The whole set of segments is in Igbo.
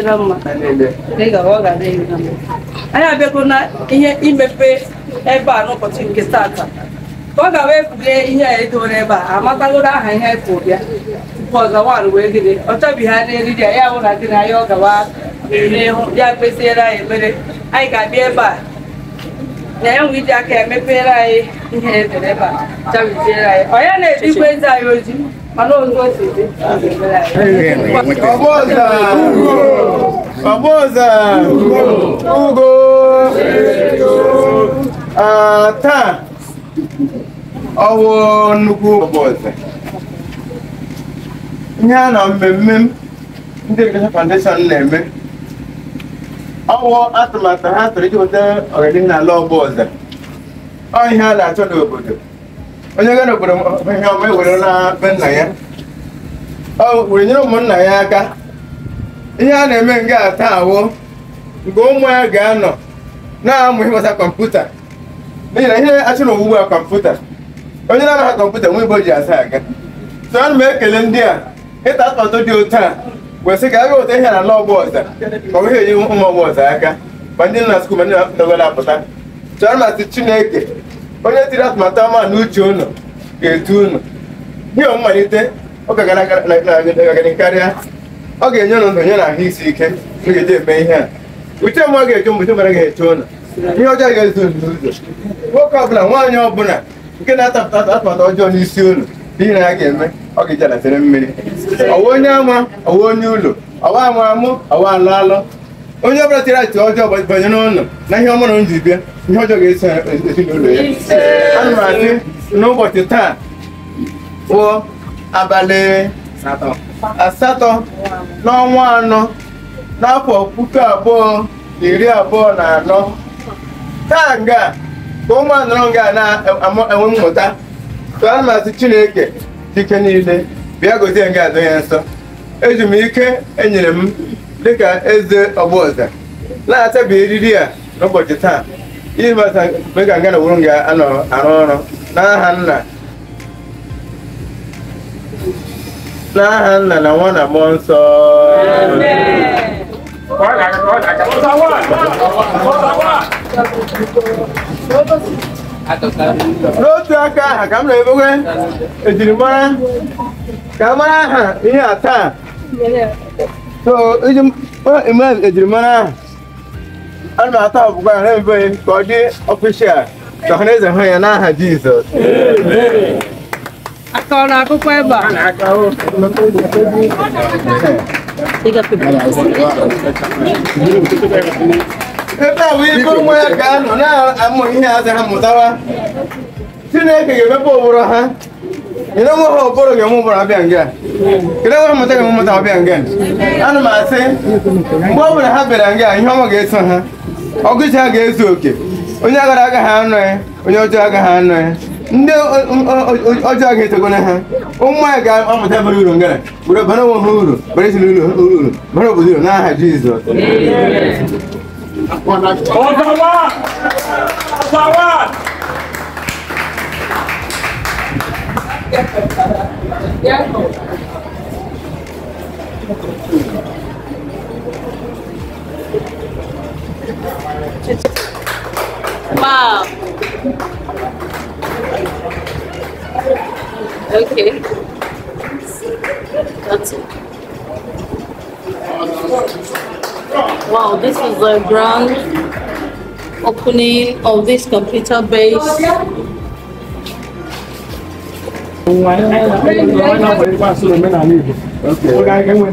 adịghịra mma dịka ọ ga adịghịra mma anyị abịago na ihe imepe ebe a n'ụbọchị nke tata ọ ga wee kwulie ihe a edowere ebe a amatagoro aha ihe anyị kwụ bịa tupu ọzawan wee gịnị ọ chọbighị ha n'eriri ya ya wụra gị na ya ọ gawa n'ihu ya kpesiere anyị ekpere anyị ga-abịa ebe a na ya nwe iji aka emepere anyị ihe edere ebe a chabiziere anyị ọ ya na-edikwa eze anyị oji ọbụza ugo taa ọwụ nnukwu ọbụza ihe a na mmemme m ndị Education Foundation na-eme ọwụ atụmatụ ha tụrụ iji weta ọganihu n'ala ọbụza ọ ihe a na-achọ n'obodo onye ga n'obodo ihe ọma ewere na be nna ya ọ were nyere ụmụnna ya aka ihe a na-eme nga ata awụ nke ụmụ ya ga-anọ na-amụ ịmụta kọmputa n'ihi na ihe achụ na owuwe kọmputa onye na-amaghị kọmputa nwe ibo ji asa aga tụọ ana m ekele ndị a ịta atụmatụ dị otu a wesị ka aga ụta ihe na ala ọgbọ ọza ma ọ bụghị enye ụmụ ọgbọ ọza aka ma ndị nọ na skuul ma ndị nọgara apụta so ana m asị chineke onye tiri atụmatụ ama n'uche uche ụnụ ga-etu ụnụ nye mmalite ọ ga karịa ọ ga-enye ụnụ ndụ nye na ahụ isi ike ga-eji eme ihe a uche mmụọ ga-eje mgbe chemara ga-eche ụnụ ihe ọjọọ ga ezu ndụ ụzọ nwoke ọbụla nwaanyị ọbụla nke na-atapụta atụmatụ ọjọọ n'isi ụlọ ihe na ya ga-eme ọ ga-eji alatere mmiri ọwa onye ama ọwa onye ụlọ ọwa amụ amụ ọwa alụ alụ onye ọbụla tere achịcha ọjọọ banye n'ụlọ na ihe ọmụrụ m ji bịa ihe ọjọọ ga-eso ezinụlọ ya ana m n'ụbọchị taa bụ abalị asatọ n'ọnwa anọ n'afọ puku abụọ na iri abụọ na anọ taa nga ka ụmụ anọrọ nga na-enwe mmụta tụọ ana chineke dike niile bịa gozie nga adọ ya nsọ eji m ike enyere m dịka eze ọgbọọza na-atabi eriri a n'ụbọchị taa ịbata mgbe ka nga na wuru ga-anọ arụ ọrụ n'aha nna n'aha nna na nwa na mmụọ nsọ n'otu aka aha ka m na-emewe ejirimara ka a mara aha ihe a taa iji ejirimara ahụ a na-atọ ọbụgwa ahụ ebe ka ọ dị ọfishal ka ọhanaeze hụ ya n'aha Jizọs akọrọ akụkọ ebe a ebe a bụ ibe nwa ya ga-anọ na-amụ ihe a ha mụtawa Chineke ga-emepe ụbụrụ ha ina mo ho boro ge mo boro abi angen ina wo mo tege mo mata abi angen anu ma se mo boro ha bere angen ihe mo ge so ha ogusi ha ge so oke onye agara aga ha anọ ya onye ọjọọ aga ha anọ ya ndị ọjọọ ga-etego na ha ụmụ anyị ga-amụta bara uru ngara were bara onwe ha uru bara ezinụlọ ha uru bara obodo uru n'aha Jizọs Ọzawa! Ọzawa! Wow. Okay. That's it. Wow, this is the grand opening of this computer base.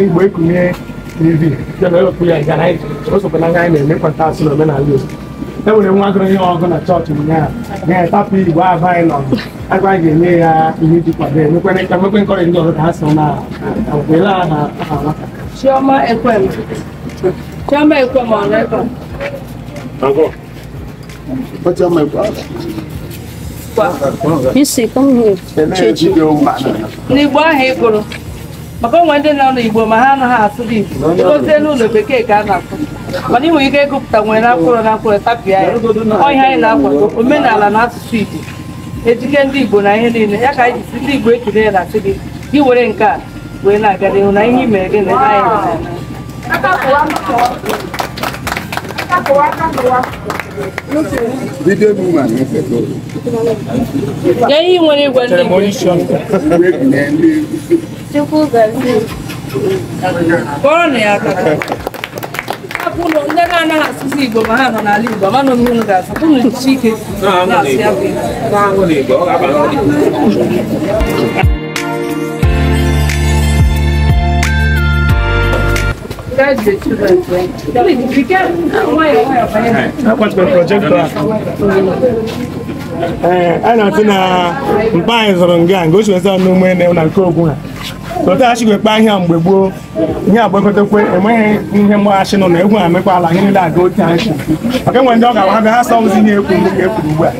igbo ekunye tv na-emekọta asụ n'omenala igbo enwere nwa gụrụ ihe ọgụ na chọọchị ụnyaahụ na-etapụ igwe aba agwa ga-enye ya ihe iji kwado emekwere ka mekwe nkọrị ndị ọzọ ka ha so na agwela ha nwata ekwem chioma ekwem n'igbo ahụ ị gụrụ maka onwe ndị nọ n'igbo ma ha anaghị asụ dị igbo gozie n'ụlọ bekee ka a na-asụ mana ị nwere ike ịgụpụta nwere na mkpụrụ na mkpụrụ tapịa ya ọhịa anyị na-akwado omenala na asụsụ igbo ejike ndị igbo na ihe niile ya ka anyị jisi ndị igbo ekele ya na-asị gị gị were nke a wee na-aga n'ihu na ihe i mere gị na anyị ihe nwere igwe kpọrọ ya aka ndị na-anaghị asụsụ Igbo ma ha nọ n'ala Igbo mana onwe unu ga-asụ unu jichi ike na-asụ ya bụ Igbo Charge de tout votre. Il est difficile. Nakwata projekta a na-atụ na mkpa anyị zụrụ nga nga ochiwezi ọnụ ume na na nke ogwu ha tọtaghachi ekpe ahịa mgbe gboo ihe agbakọtakwe enweghị ihe mgbaghachi nọ na egwu ha mekpa ala ihe niile aga otu anyị maka enwe ndị ọ ga-awa ha ha sọzi ihe ekwu mgbe ka ekwuru ugbu a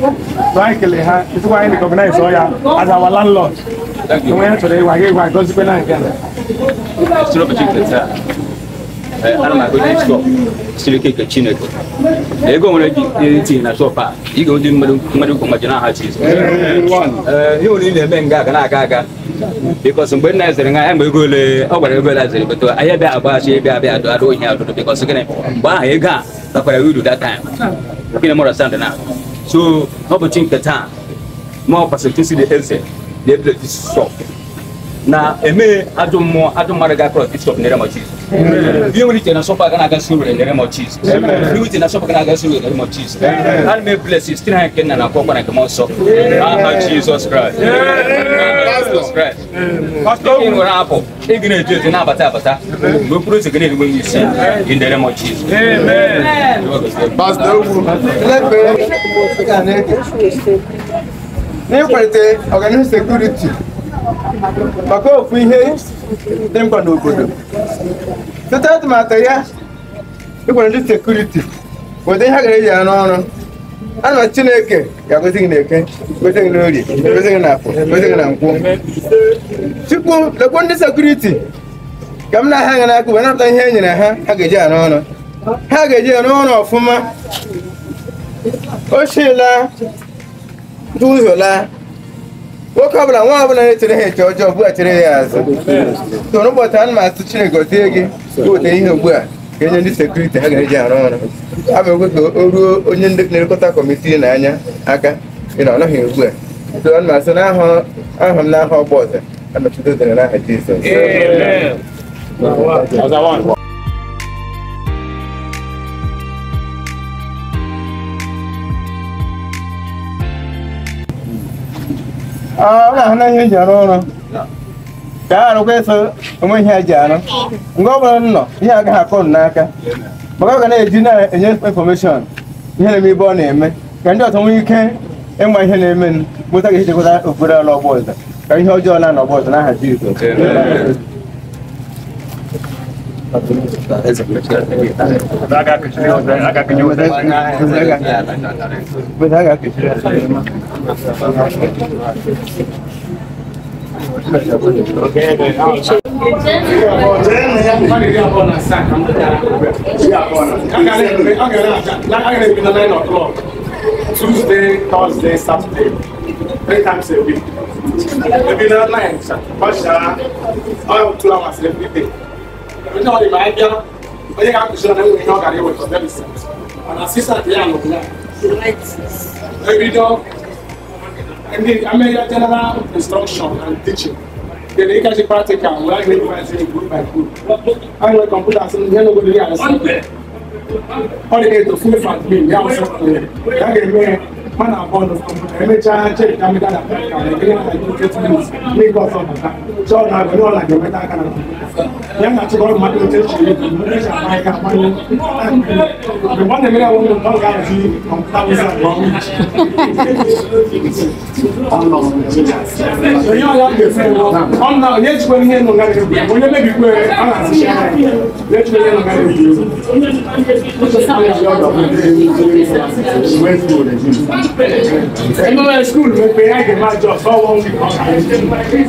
tụ anyị kelee ha ezikwa anyị rekọgnaiz ọ ya azawa landlọd enwe ya chọrọ ịwa gị ịgwa gozikwe na nke a ana ma goji sọ silike ka chineke ego nwere gị tinye na shọp eh, eh, eh, a ị ga-odi mmadụ ukwu ma ji na aha chiz ihe ole ị na-eme nga na-aga aga bikọs mgbe nna ezere nga ya mgbe ego ole ọ gwara ego ole ezere bụtụ ahịa bịa agbaghachi ebe abịa adụ adụ ohi adụdụ bikọs gịnị mgbe ahụ ego a oh, takwara uh, uru that time gịnị mụrụ sand na so ọ bụ chi nke taa ma ọ kwasịrị chi si dị eze na na eme ajọ mmụọ ajọ mmadụ ga-akọrọ bishọp na eremọ jizọs ihe nwere iche na nsọpụ aga na-agasị uru na eremọ jizọs ihe iche na nsọpụ aga na-agasị uru na eremọ jizọs ana m eblesi site na nke nna na akwụkwọ na nke m nsọ aha jizọs kraịst ị nwere apụ ị ga na-eji eji na-abata abata mgbe okpuru ụzọ ga na-erigbe amen isi gị na eremọ jizọs n'ịkwalite ọganihu sekuriti maka ofu ihe dị mkpa n'obodo site atụmatụ ya ịkwara ndị sekuriti bụ ihe a gara eji ya n'ọrụ na chineke ya agọzi gị n'eke gozi gị n'orie gozi gị n'afọ gozi gị na nkwụ chukwu lekwa ndị sekuriti ka m na-aha ha n'aka ihe e ha ha ga-eji ya n'ọrụ ha ga-eji ya n'ọrụ ọfụma ochila duhiola nwoke ọbụla nwa ọbụla na-echere ha eche ọjọọ ugbu chere ya azụ so n'ụbọchị ana m asụ Chineke gozie gị gote ihe ugbu a ka enye ndị sekuriti ha ga-eji arụ ọrụ abụ ekwe ka o ruo onye na-elekọta kọmitii na anya aka ịna na ọ nọghị ugbu a so ana m asụ n'aha m n'aha ọgba ọzọ anọchite ụzọ n'aha Jizọs ana ah, hana hi jaro na da aro ke so mo hi ajaro ngo bo no hi aga ha kon na aka maka ga na eji na enye information ihe na mi bo na eme ka ndị ọtọ nwee ike ịma e, ihe na-eme m mụta ga-ehichekwa okpere ala ọgbọ ọzọ ka ihe ọjọọ na-anọ ọgbọ ọzọ n'aha Jizọs Tuesday, Thursday, Saturday, three times a week. Maybe not nine, but uh, all two hours every day ɛmɛtɛ ɔde ba abia ɔyɛ ka kusi ɔna ɛwɔ ɛnyɛ ɔgari ɛwɔ ɛtɔbɛ bi sɛ ɔna sisa de ano bila ebi dɔ ɛni amɛya general instruction and teaching then you catch the practical we like make you find say group by group how you like computer say you no go dey understand all the way to full fat me yam sọ pé yàgẹ̀ mẹ́rin man and born of computer emechaa chek na mmega na America Nigeria na United States Lagos ọbata chọọ na agụ n'ụlọ agụ nweta aka na ya na achịkọrọ mmadụ oche chiri echa ama ya akwanye mgbe ọ na-emere awụ mgbe ọ ga-ahazi kọmputa wụza nke ọnwụ onye ọya ga-esi ọ na onye ejikwa ihe nọ ngara egwu onye mebikwe ọ na-asịcha ya onye ejikwa ihe nọ ngara egwu ẹnu ẹ skul mi pe ẹgbẹ máa jọ fọ wọn wí kan àyè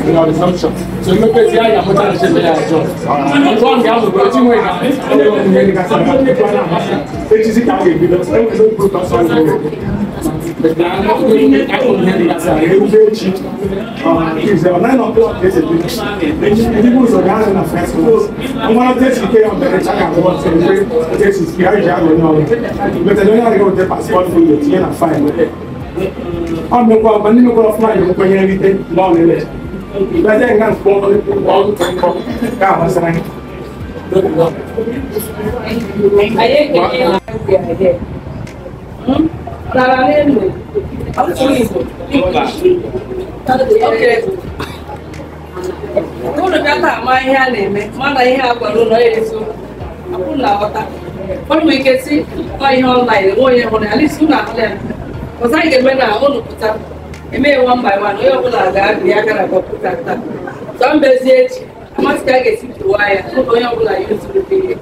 ìlànà assumption so mi pe ti àyà mọta ṣe bẹyà jọ ọgbọn ọgbà àgbègbè tí wọn ìlànà ẹgbẹ wọn ìyẹn ní kásán àgbègbè wọn náà máa ṣe ètùsí kàgbègbè lọ ẹgbẹ ló ń kúrò kásán àgbègbè. At 9 o'clock, there's a beach. People are gathering at first because I'm one of the things on the check and what celebrate. The text is here, you have now. But I don't know how Hmm? dara n'elu asụsụ Igbo unu bịata ama ihe a na-eme mana ihe a gwara ụlọ ya ezu akwụ ọta. aghọta ọnụ ike si ọ ihe ọnlaịn enwe onye hụrụ ya lisi ụlọ ahụ ya ọzọ anyị ga-eme na ụlọ pụta emee one by one onye ọbụla ga-abịa ya gara kọmputa taa zọ mbezi echi amasị ka a ga-esi pụwa ya ụlọ onye ọbụla ya ezuru ihe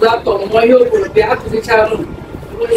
zaptọp mụọ ihe o kwuru bịa akụzicha ụlọ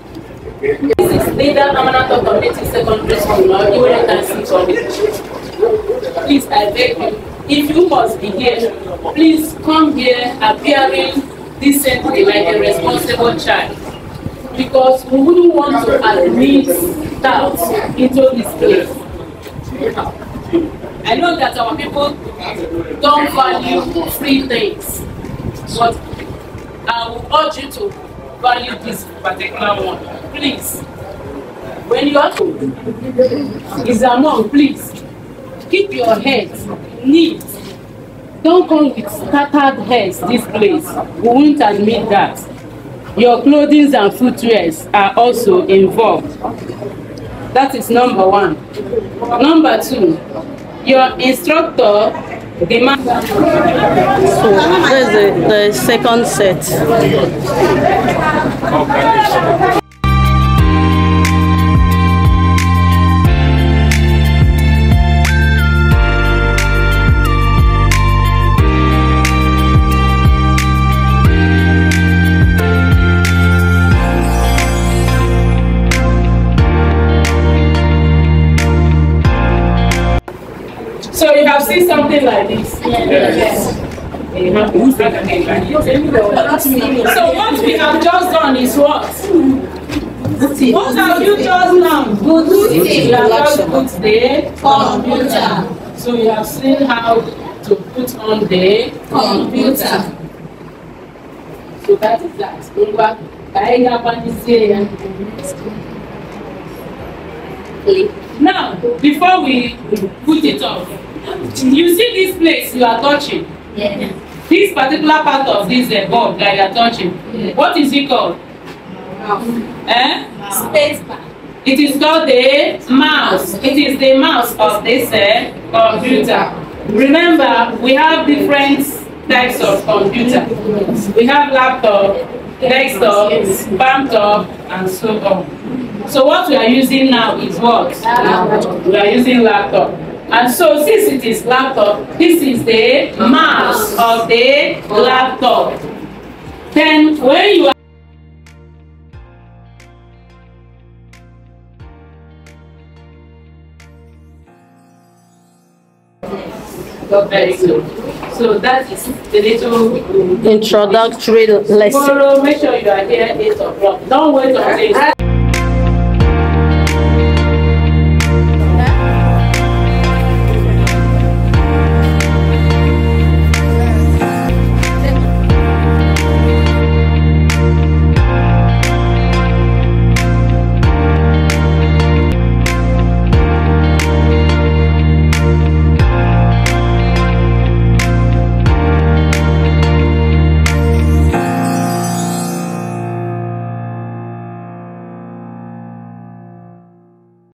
This is Linda Permanent of Community Secondary School or Iwere Council College. Please, I beg you, if you must be here, please come here appearing decently like a responsible child. Because we wouldn't want to admit doubts into this place. I know that our people don't value free things, but I will urge you to value this particular one. Please, when you are is among, please keep your head neat. Don't come with scattered heads this place. We won't admit that. Your clothing and footwear are also involved. That is number one. Number two, your instructor So this is the, the second set. something like So what we have just done is what? What have you just done? Good Booty. You have just put the computer. So you have seen how to put on the computer. So that is that. Now, before we put it off, you see this place you are touching yes. this particular part of this uh, bulb that you are touching yes. what is it called mouse. Eh? Mouse. space bar it is called the mouse it is the mouse of this uh, computer remember we have different types of computer we have laptop desktop, laptop, and so on. So what we are using now is what? We are using laptop. And so since it is laptop, this is the mass of the laptop. Then when you are very good. So that is the little introductory lesson. Tomorrow, make sure you are here 8 o'clock. Don't wait until